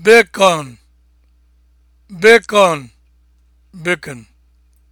bacon bacon